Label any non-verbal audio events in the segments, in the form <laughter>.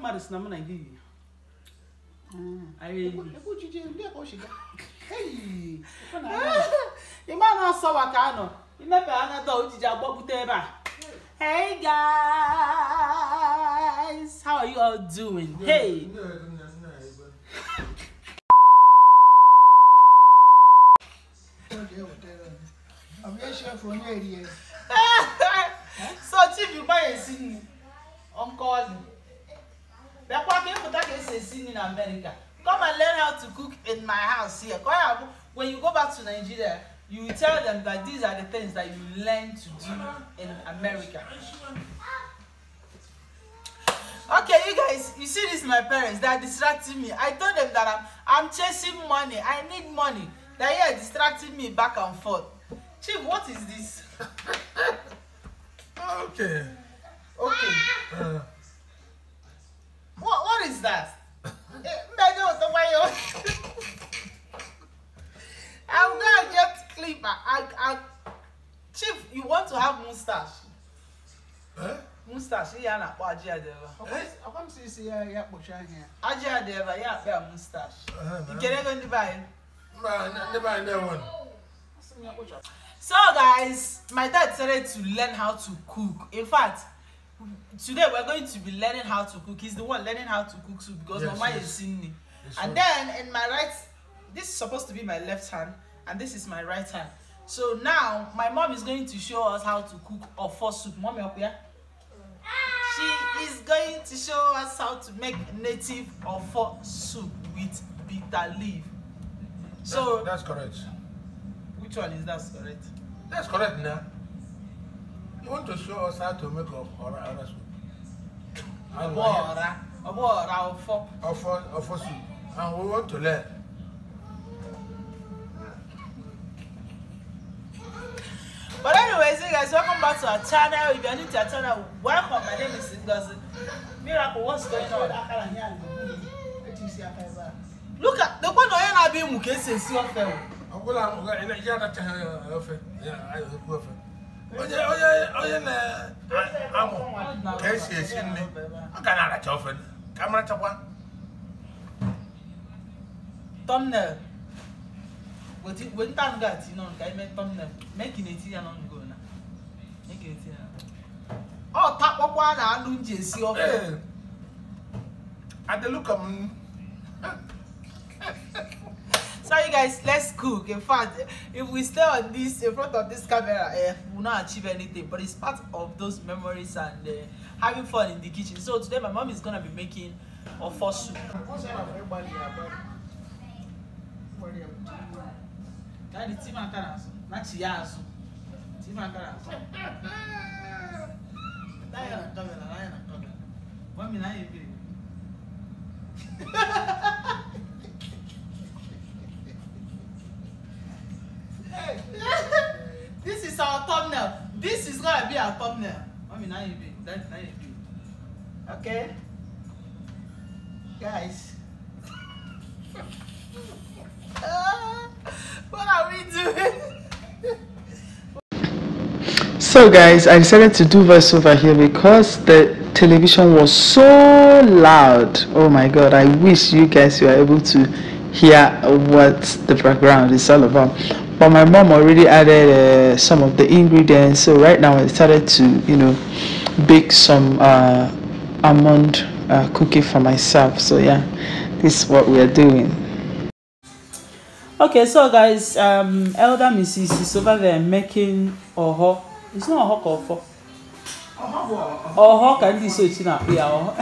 mmadụ ah. si na m na gị ịma na ọsọ wa ka anọ imepe anata ojiji agbapụta ebe a hey guys how are you all doing hey <laughs> so chief gbayesi nkọli bịakwa ka ịpụta ka esi esi nri na America come and learn how to cook in my house here ka ya bụ when you go back to Nigeria you tell them that these are the things that you learn to do in America. Okay, you guys, you see this my parents, they are distracting me. I told them that I'm, I'm chasing money. I need money. They are distracting me back and forth. Chief, what is this? <laughs> okay. Okay. Ah. Uh. What is that? Mẹ́jọ ò tó wáyé o. I'm gonna get clip and and chief you want to have mustache. Huh? mustache ihe a na-akpọ ajị adịba ọkwa m si isi ya ya kpọchi anya ya ajị adịba Yeah, akpa ya mustache nkere ego ndị be buy? ndị never buy na one. so guys my dad started to learn how to cook in fact today we're going to be learning how to cook. He's the one learning how to cook soup because yes, Mama yes. is seeing me. Yes, and then in my right, this is supposed to be my left hand, and this is my right hand. So now my mom is going to show us how to cook ofo soup. Mommy up here. She is going to show us how to make native ofo soup with bitter leaf. So that's, that's correct. Which one is that correct? That's correct now. want to show us how to make ọra ọra soup? Ọbọ ọra ọbọ ọra ọfọ. Ọfọ ọfọ soup and we want to learn. But anyways, you guys, welcome back to our channel. If you're new to our channel, welcome. My name is Ngozi. Miracle, what's going on? Look at the one onye na-abịa ịmụ ka esi esi ofe. Ọ bụla ya anachaghị ofe, ya ekwu ofe. onye onye onye na-amụ ka esi esi nri ọ ga na-aracha ofe ka marachakwa thumbnail anụ ga-ati ime thumbnail ka ọ takpọkwa na anụ ji esi ofe m so you guys let's cook in fact if we stay on this in front of this camera eh, we'll not achieve anything but it's part of those memories and uh, having fun in the kitchen so today my mom is gonna be making a first soup <laughs> our thumbnail. This is gonna be our thumbnail. Mommy, now you do. That now you Okay, guys. <laughs> Ah, what are we doing? <laughs> so guys, I decided to do voiceover here because the television was so loud. Oh my god, I wish you guys were able to hear what the background is all about but my mom already added uh, some of the ingredients so right now I started to you know bake some uh, almond uh, cookie for myself so yeah this is what we are doing okay so guys um elder mrs is over there making oho it's not oho for. oho can this so it's not yeah oho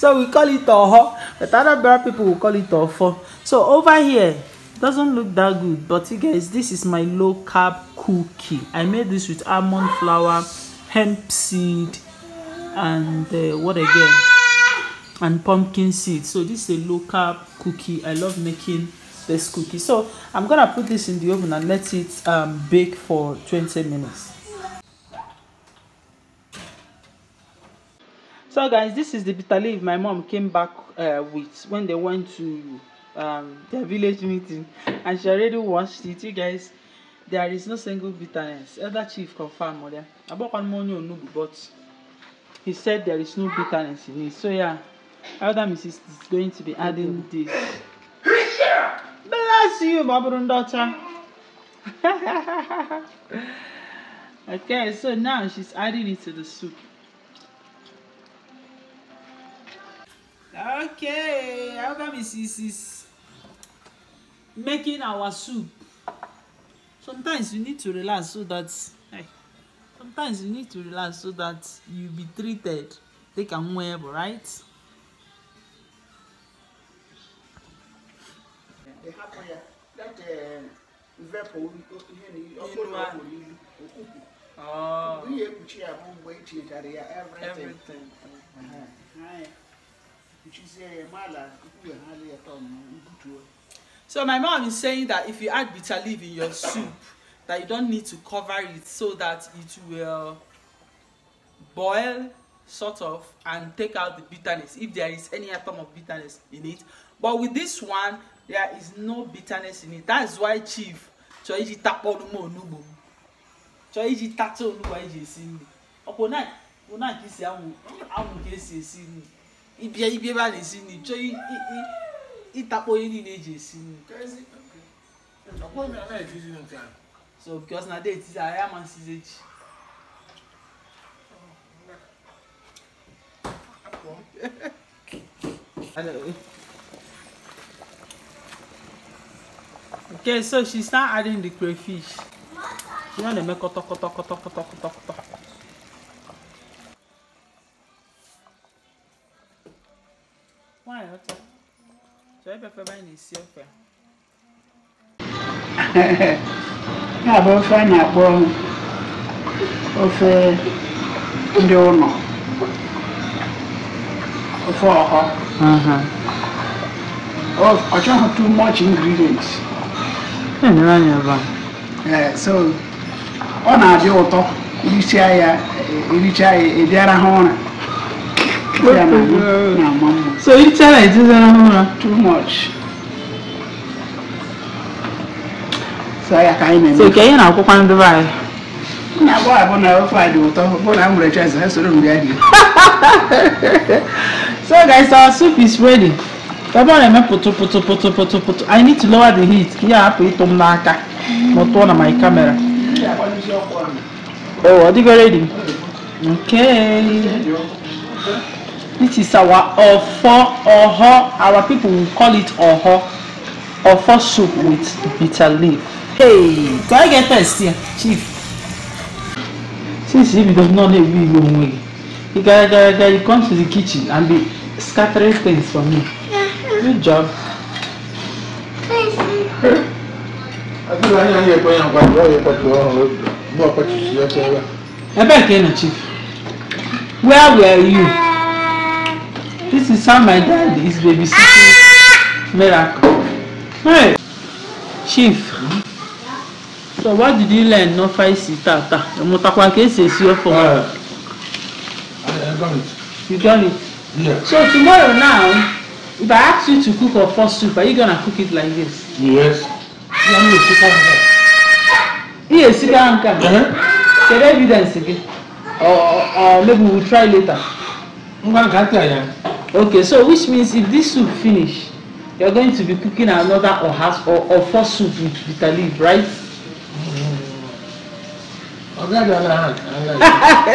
so we call it oho but other people will call it ofo so over here doesn't look that good but you guys this is my low carb cookie i made this with almond flour hemp seed and uh, what again and pumpkin seed so this is a low carb cookie i love making this cookie so i'm gonna put this in the oven and let it um, bake for 20 minutes so guys this is the bitter leaf my mom came back uh, with when they went to um, their village meeting and she already watched it. You guys, there is no single bitterness. Elder Chief confirmed mother. About money on but he said there is no bitterness in it. So yeah, Elder Mrs. is going to be adding this. Bless you, Babylon daughter. <laughs> okay, so now she's adding it to the soup. Okay, Elder Mrs. is making our soup sometimes you need to relax so that sometimes you need to relax so that you be treated they can well right Everything. Uh-huh. Which is a uh, mala, you have a ton, you do it so my mom is saying that if you add bitter leaf in your soup that you don't need to cover it so that it will boil sort of and take out the bitterness if there is any atom of bitterness in it but with this one there is no bitterness in it that's why chief chọiji takpọrụm onugbo m chọiji tata onugbo anyị ji esi nri ọkwa ụna ka esi anwụ ka esi esi nri ịbịa ibia ịtakpọ onye niile eji esi nri so because na date is aya amansizi echi okay so she start adding the crayfish she don dey make kọtọkọtọkọtọkọtọkọtọ <laughs> ya bụ ofe a na-akpọ ofe ndị ụlọ ofe ọhọ ọ chọghị too much ingredients so ọ na-adị ụtọ irichaa ya erichaa ya ịbịara ha ụra na-ama mma So you tell internet is uh, too much. So I can't even. So can you not cook on the right? Na bọ abọ na ọfọ adị ụtọ bụ na mụrụ chọọsị ha soro mgbe ahụ. So guys our soup is ready. Tọba na-eme pụtụ pụtụ pụtụ pụtụ pụtụ. I need to lower the heat Yeah, put it on m n'aka ma tụọ my camera. Oh, are dịgo ready? Okay. It is our ofo oho. Our people will call it oho. Ofo soup with bitter leaf. Hey, do I get first here, Chief? Since he does not know with your way, he, got, got, got, he comes to the kitchen and be scattering things for me. Good job. Where were you? This is how my dad is babysitting ah! Miracle. Hey, Chief. So what did you learn no five sita ta? Mo takwa ke se si o I got it. You got it. Yeah. So tomorrow now, if I ask you to cook a first soup, are you gonna cook it like this? Yes. Yeah, me sika nka. Iye sika nka. Share evidence again. Or oh, or oh, oh, maybe we'll try later. Ngwa nka ti aya okay so which means if this soup finish you are going to be cooking another or has or or four soup with bitter leaf right. ọ̀gá ìjọba náà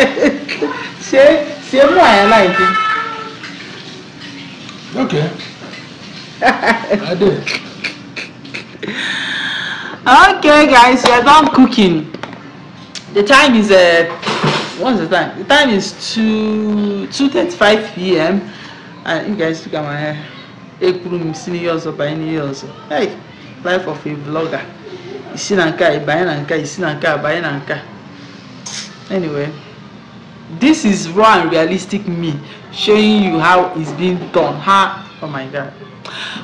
ṣe ṣe mú àyà láìpẹ́. okay. <laughs> I did. okay guys we are done cooking the time is uh, what's the time the time is two two thirty five pm Ah, you guys look at my hair ekwuru m si n'ihe ọzọ banye n'ihe hey life of a vlogger isi na nke a ịbanye na you see isi na nke anyway this is raw and realistic me showing you how it's being done how oh my god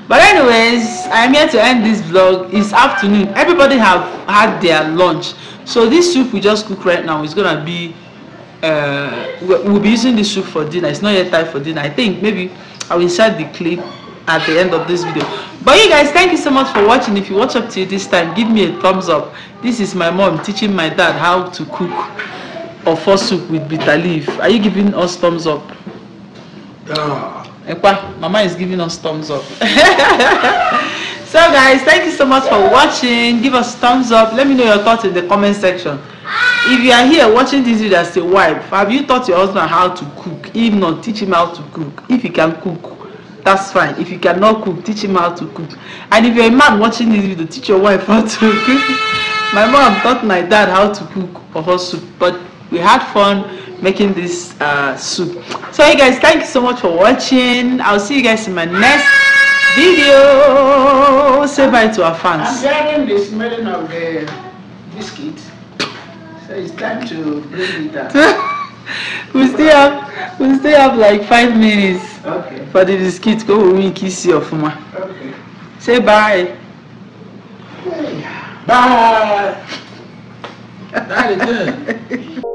but anyways i am here to end this vlog it's afternoon everybody have had their lunch so this soup we just cook right now is gonna be uh, we'll be using this soup for dinner. It's not yet time for dinner. I think maybe I'll insert the clip at the end of this video. But you guys, thank you so much for watching. If you watch up to this time, give me a thumbs up. This is my mom teaching my dad how to cook a for soup with bitter leaf. Are you giving us thumbs up? Yeah. Ekwa, mama is giving us thumbs up. <laughs> so guys, thank you so much for watching. Give us thumbs up. Let me know your thoughts in the comment section if you are here watching this video as a wife have you taught your husband how to cook if not teach him how to cook if he can cook that's fine if you cannot cook teach him how to cook and if you're a man watching this video teach your wife how to cook <laughs> my mom taught my dad how to cook for her soup but we had fun making this uh, soup so hey guys thank you so much for watching i'll see you guys in my next video say bye to our fans i'm getting the smelling of the biscuit So it's time to bring it down. <laughs> we still have we still have like five minutes okay. for the biscuit go we kiss you of ma. Okay. Say bye. Hey. Bye. Very <laughs> good. <laughs>